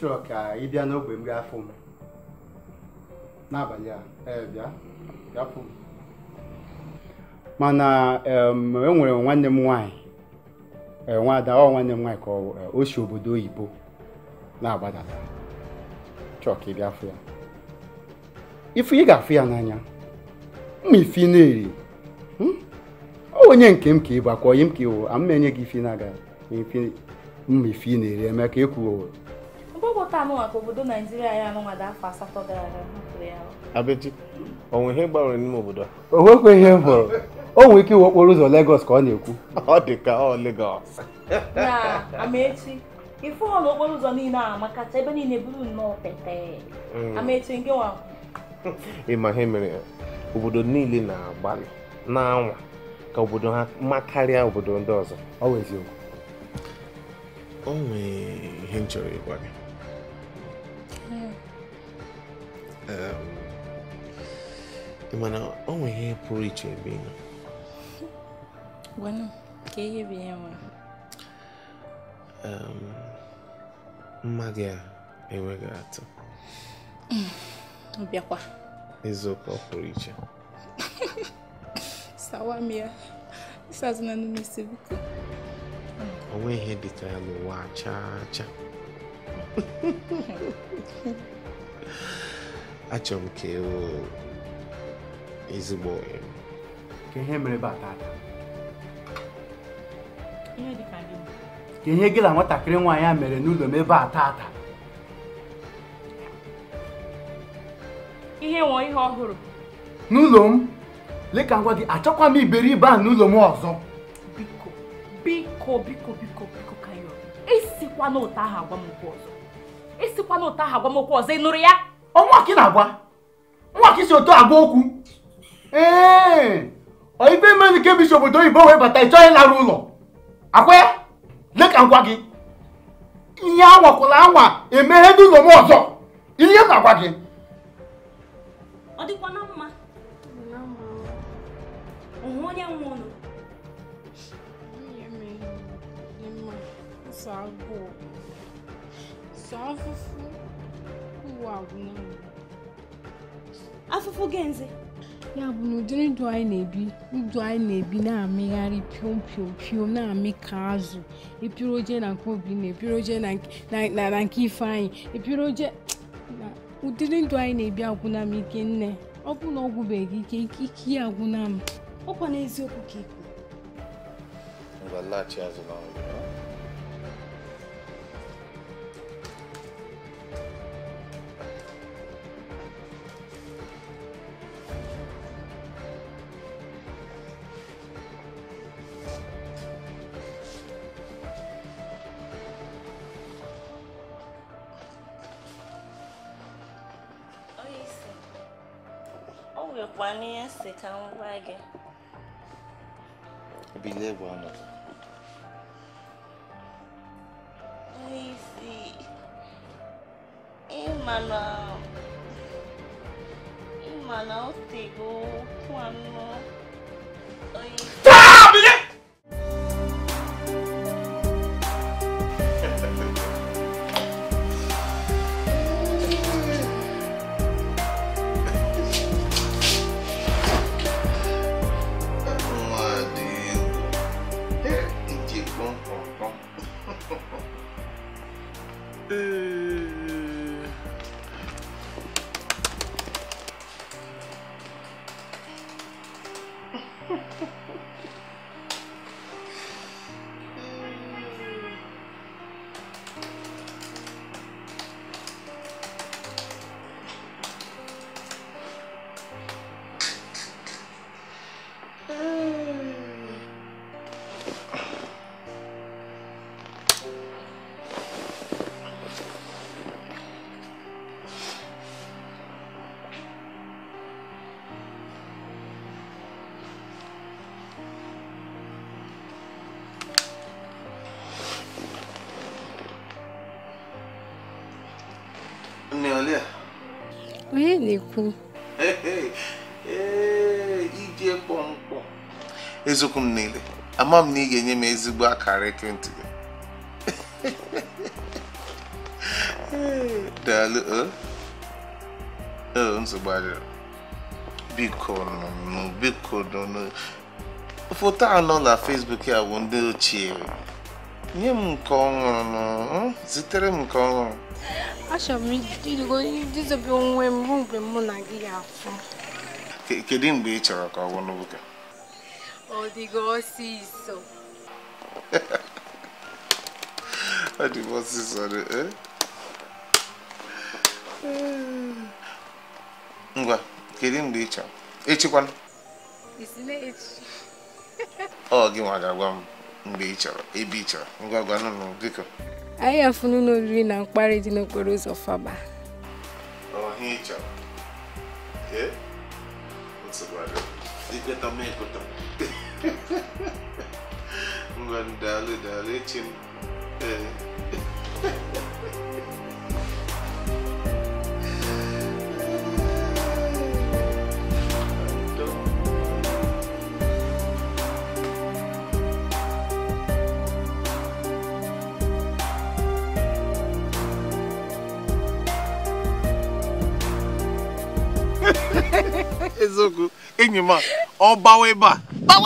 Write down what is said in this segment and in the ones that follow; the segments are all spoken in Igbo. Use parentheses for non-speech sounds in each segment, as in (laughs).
chọrọ ka ị bịa n'ogbe m gaa fụ m n'abalị a ee bịa bịa fụ m mana e nwere nwanne m nwaanyị e, nwaada ọ nwanne m nwaanyị ka e, o si obodo oyibo na-agbadata chọọ ka ị bịa fụ ya ifu ị ga-afụ ya n'anya mma ifi na-eri hmm? ọ onye nke m ka ị bụ akwa onye m ka ịwụ mma enye gị ifi na-aga mma ifi na-eri eme ka ekwuo ọgwọta anụ maka obodo naijiria ya anụnwa dị afọ asatọ gara aga hapụrụ ya abeji onwe ihe gbanwere n'ime obodo o nwekwa ihe m hụrụ o nwere ike iwe okporo ụzọ legos ka ọ na-ekwu ọ dị ka ọ legos na amaechi ife ọ na okporo ụzọ niile a makacha ebe niile bụrụ nnọọ pete mm. amaechi nke nwa ịma ihe mere obodo niile na-agbalị na-anwa ka obodo ha mma karịa obodo ndị ọzọ ọ wụ eziokwu o nwee ihe m chọrọ ịgwa gị ị eh, mana ọ nwere ihe pụrụ iche ebe ị nọ mma gị a enweghị atụ bịakwa eziokwu ọ pụrụ iche (laughs) sawam ya ihe dịka ya n'ụwa chaa chaa (laughs) achọrọ m ka e ezigbo ka ihe mere ka gị na nwatakịrị nwaanyị a mere n'ụlọ m ebe a tata ihe nwere ihe ọhụrụ n'ụlọ m leka ngwa gị achọkwa m iberibe a n'ụlọ m ọzọ biko biko biko biko biko esikwa n'ụtọ ahụ ọzọ ọzọ ị nụrụ ya ọnwa ka na-agwa nwa ka isi otu agwa okwu ee ibe mmadụ nke bisi obodo oyibo wee bata ị chọghị ụlọ akwa ya ka ngwa gị ihe anwakwụla anwa emeghe n'ụlọ m ọzọ ihe na-agwa gị ọ na mma agwụ agwụ afụfụ gị ya bụ na ụdịrị ndụ anyị na-ebi ndụ anyị na-ebi na-amịgharị piom piom piom na-amị ka azụ ịpịrị oje na nke obi na ịpịrị oje na nke ifeanyị ịpịrị oje na ụdịrị ndụ anyị na-ebi agwụna m ike nne ọ bụ na ọ gwụbeghị ike ike ya agwụna m ọkwa n'eziokwu ka ikwu ta àwọn báàgì. ibi ilé ẹ̀gbọ́n àná. Easy. Imana. Imana ó tègbó fún àná. Oyin. Ha ha ha. onye na-ekwu ije kpọmkpọ eziokwu m niile ama m na ị ga-enye m ezigbo akara ekwentị gị (laughs) daalụ nsogbu adịrị biko nụ biko nụ foto anọ na Facebook ya bụ ndị ochie nye m nke ọhụrụ hmm? zitere m nke ọhụrụ achọrọ m idobe onwe m ruo mgbe mụ na gị ga-afụ kedu mgbe ị chọrọ ka ọ bụ n'oge ọ dịgo ọsịsọ (laughs) ọ dịgo ọsịsọ e? ngwa kedu mgbe ị chọrọ echikwana ọ gị nwa ga-agwa m mgbe ị chọrọ ebe ị chọrọ ngwa gwanụ biko anyị afụnụ ụlọ oriri na mkparị dị n'okporo ụzọ faba (laughs) ngwa ndalụ dalụ (laughs) eziokwu enyi m ọ gbawa ebe a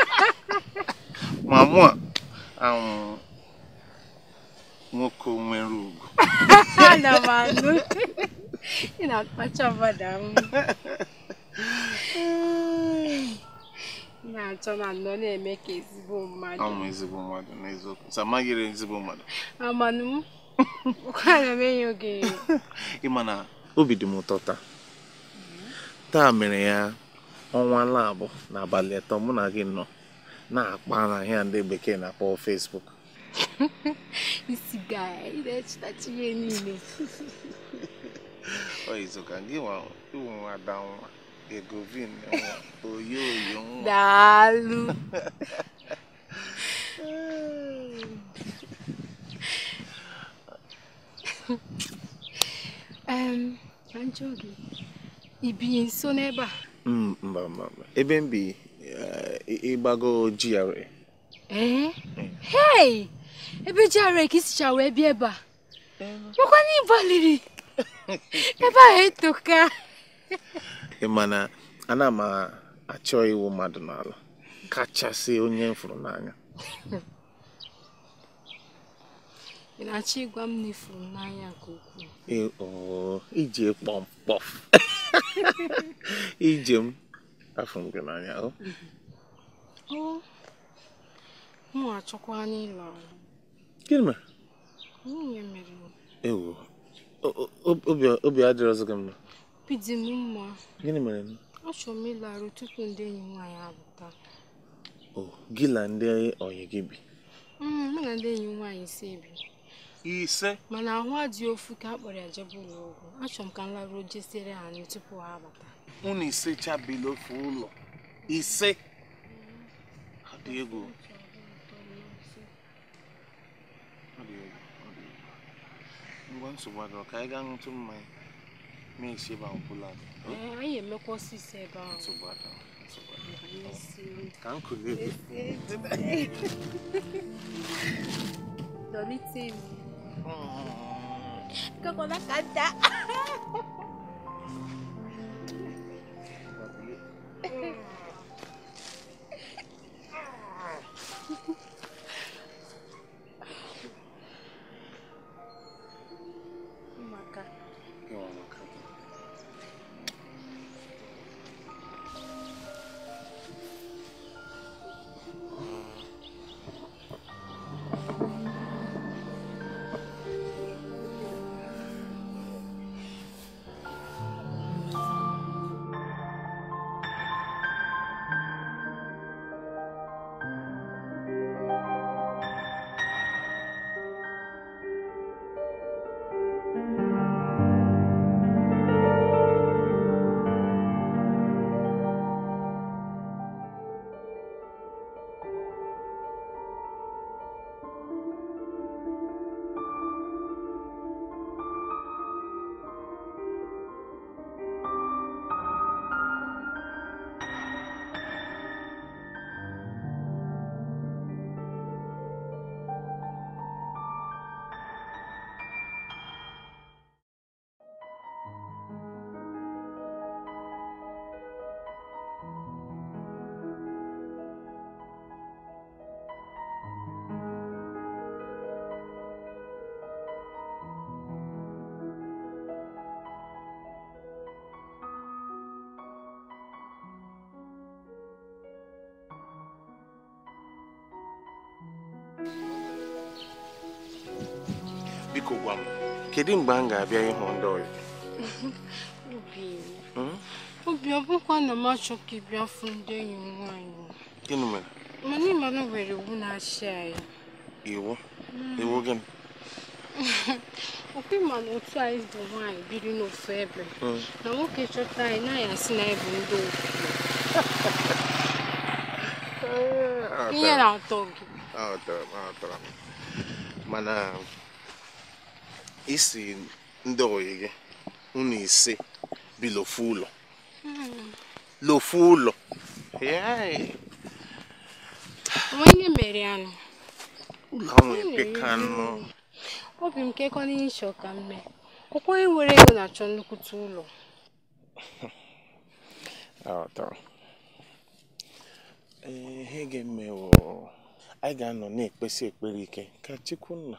(laughs) ma mụ a nwoke nwere ugwu (laughs) ị na-akpacha mmadụ ahụ na-achọ na nọ na-eme ka ezigbo mmadụ ọmụ ezigbo mmadụ n'eziokwu samaghịrị ezigbo mmadụ amanụ m ana m enye oge (laughs) ịma na obi dị m ụtọ taa taa mere ya ọnwa labụ n'abalị ụtọ mụ na gị nọ na-akpa na ahịa ndị bekee na-akpọ Facebook isi ị na-echetachi ihe niile ọ (laughs) izu ka gị nwa ada nwa egovin oyo oyo nwa daalụ (laughs) (laughs) um, ibinye nso n'ebe a mm, mba mba mba ebe m bi eh, ịgbago GRA ee eh? mm. hey ebe GRA ka isicha wee bịa ebe a makwa (laughs) eh, na ịbaliri ebe ahụ etoka mana ana m achọ iwu mmadụ n'ala kachasị onye m fụrụ n'anya (laughs) ị na-achọ ịgwa m na n'anya nke ukwuu ije kpọmkpọ ije m afọ m n'anya o m na-achọkwa anya ịlọ gịnị mere nwunye mere ewo obi adịrọzị gị mma obi dị m mma gịnị mere achọ m ịlarụ tupu ndị enyi nwaanyị abụta gị na ndị ọyị gị bi mm, mụ na ndị enyi nwaanyị ise bi ise mana ahụ adịghị ofu ka a kpọrọ ya jebe ụlọ ọgwụ achọrọ m ka m laruo jesiere ha tupu ha abata unu ise chabila ofu ụlọ ise adị egwu ngwa nsogbu ka anyị gaa ṅụtụ mmanya ma esi ebe ahụ anyị ここなかった。(laughs) biko gwa m kedu mgbe m ga-abịa ịhụ ndị ọyị obi ọ bụkwa na m achọ ka ị bịa fụ ndị enyi m nwaanyị gịnị mere mana ịma na nwere iwu na-achị anyị iwu hmm. iwu gịnị (laughs) ọkwa ịma na otu anyị bụ nwaanyị biri n'ofu ebe hmm. na nwoke chọta anyị na asị na anyị ndị ofu (laughs) ihe na-atọ gị mana isi ndị oyi gị unu ise bi hmm. lofu ụlọ lofu ụlọ onye mere anụ ụlọ ahụ hmm. epeka anụ obi m kekọ n'ihe ịchọ ka m mee ọkwa onye nwere ego na-achọ nnukwute ụlọ (laughs) ah, ihe ga-emewo anyị ga-anọ na-ekpesi ekpere ike ka Chukwunna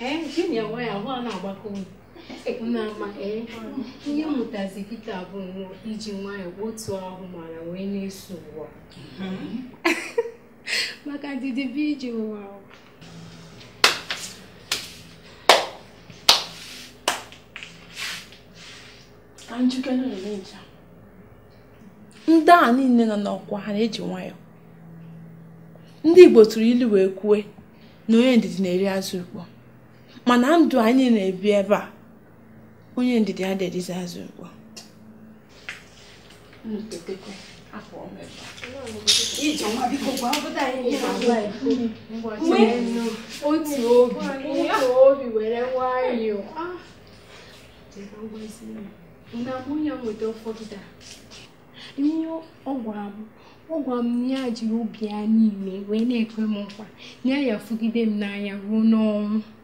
gịnị nwe ya ahụ a na-agbakọ ama ee ihe mụtazi Pita bụ iji nwayọọ otu ahụ mara wee na-eso ụwa maka ndidi iji ije ụwa ndị a niile nọ n'ọkwa ha na-eji nwayọọ ndị Igbo tụrụ ilu wee kwue na onye ndidi na-eri azụ ukpo. mana ndụ anyị na-ebi ebe a onye ndidi adịghịzi azụ ugbu ihe ọ gwara m ọ gwara m ya jiri obi ya niile wee na-ekwe nkwa ya ya fụgide m n'anya ruo n'ọnwụ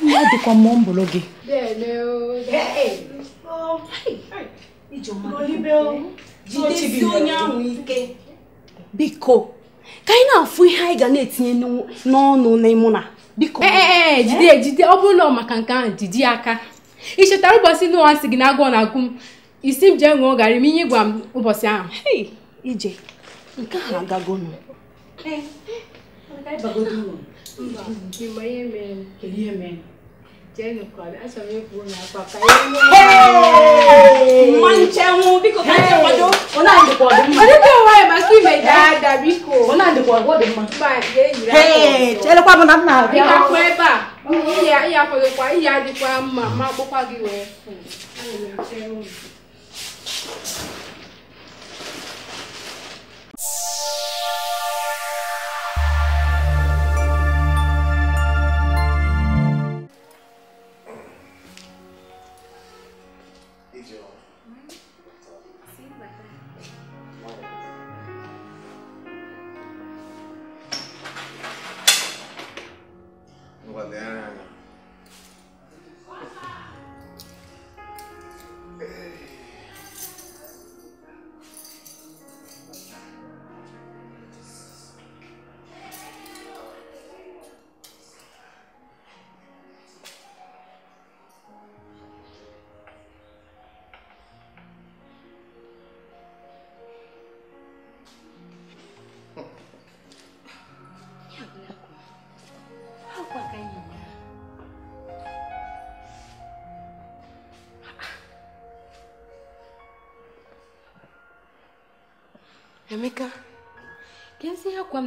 ọ dịkwa mmụọ mbụrụ gị ike biko ka anyị na-afụ ihe anyị ga na-etinye n'ọnụ n'ịmụ na biko jide jide ọ bụrụ na maka nke ahụ jide aka ị chetara ụbọchị na sị gị na agụọ na agụ m isi m jee ṅụọ garị m ahụ ije nke chelekwa bụ na m na-abịa ihe adịkwa mma ma akpụkwa gị wee Emeka, quem se ihe akwa m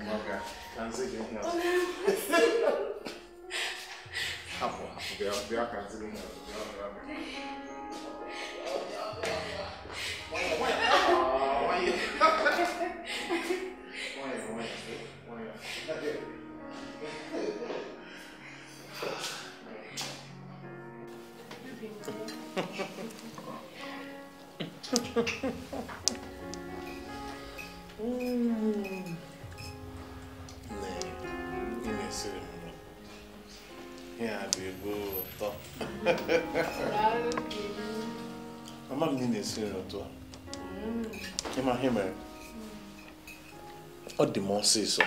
Umaga. Kansige huna. Hapo hapo vya vya kansige huna. Ha ha ha. si nri otu ịma mere ọ dị m ọsịsọ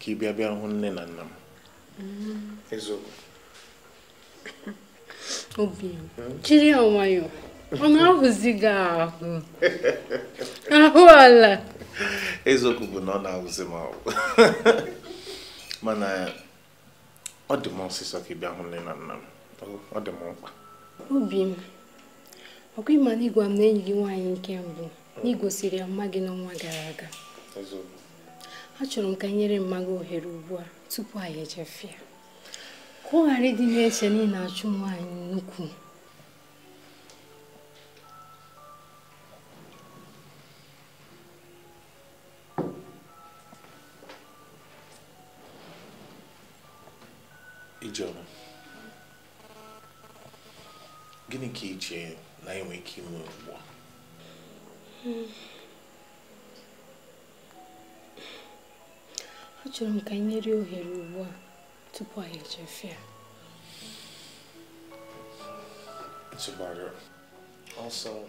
ka ị bịa bịa hụ nne na nna m eziokwu obi jiri ya nwayọọ ọ na-ahụzi gị ahụ ahụ ala eziokwu bụ na ọ na-ahụzi m ahụ mana ọ dị m ọsịsọ ka ị bịa hụ nne na nna m ọ dị m mkpa obi m ọkwa ịma na ịgwa m na enyi gị nwaanyị nke mbụ na igosiri ya mma gị n'ọnwa gara aga achọrọ m ka nyere mma ohere ugbu a tupu anyị ejefia ka ọ ghara ịdị na-eche na ị na-achụ nwaanyị nnukwu gịnị ka i na enwe ike ime ugbu a achọrọ m ka anyị nyere ohere ugbu a tupu anyị echefe ya ntụgbara ọsọ (laughs)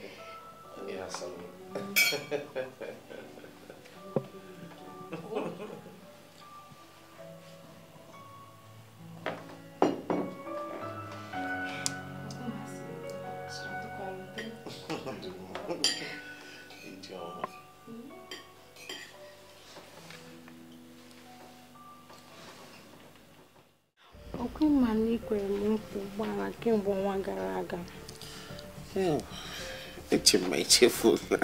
ekwere m nkwa ụgbọala kemgbe ọnwa gara aga hmm. eche ma echefula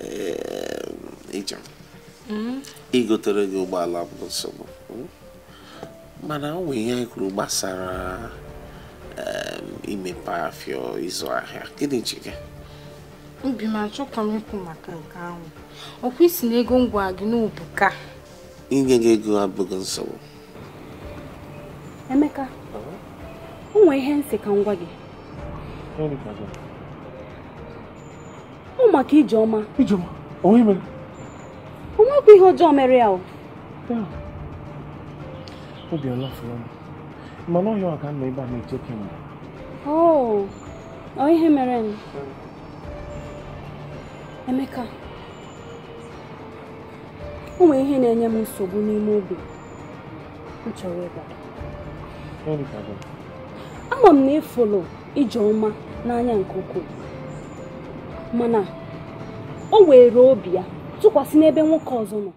ehm, ijem hmm? igotere gị ụgbọala bụ nsogbu hmm? mana o nwere ihe anyị kwuru gbasara ehm, imepe afọ ịzụ ahịa gịnị ji gị obi ma achọ ka m ikwu maka nke ahụ ọkwa isi na ego ngwa gị n'ubuka inye gị ego abụghị nsogbu Emeka o nwee ihe nsị ka ngwa gị ọ maka Ijeọma o nwekwa ihe ọjọọ mere ya mana ọhịa ọ ebe a na-eche kemgbe oh, ọ ihe mere m Emeka o nwere ihe na-enye m nsogbu n'ime obi m chọrọ ịgbara ama m na ịfụlụ Ijeọma n'anya nke ukwuu mana o were obi ya tụkwasị n'ebe nwoke ọzọ nọ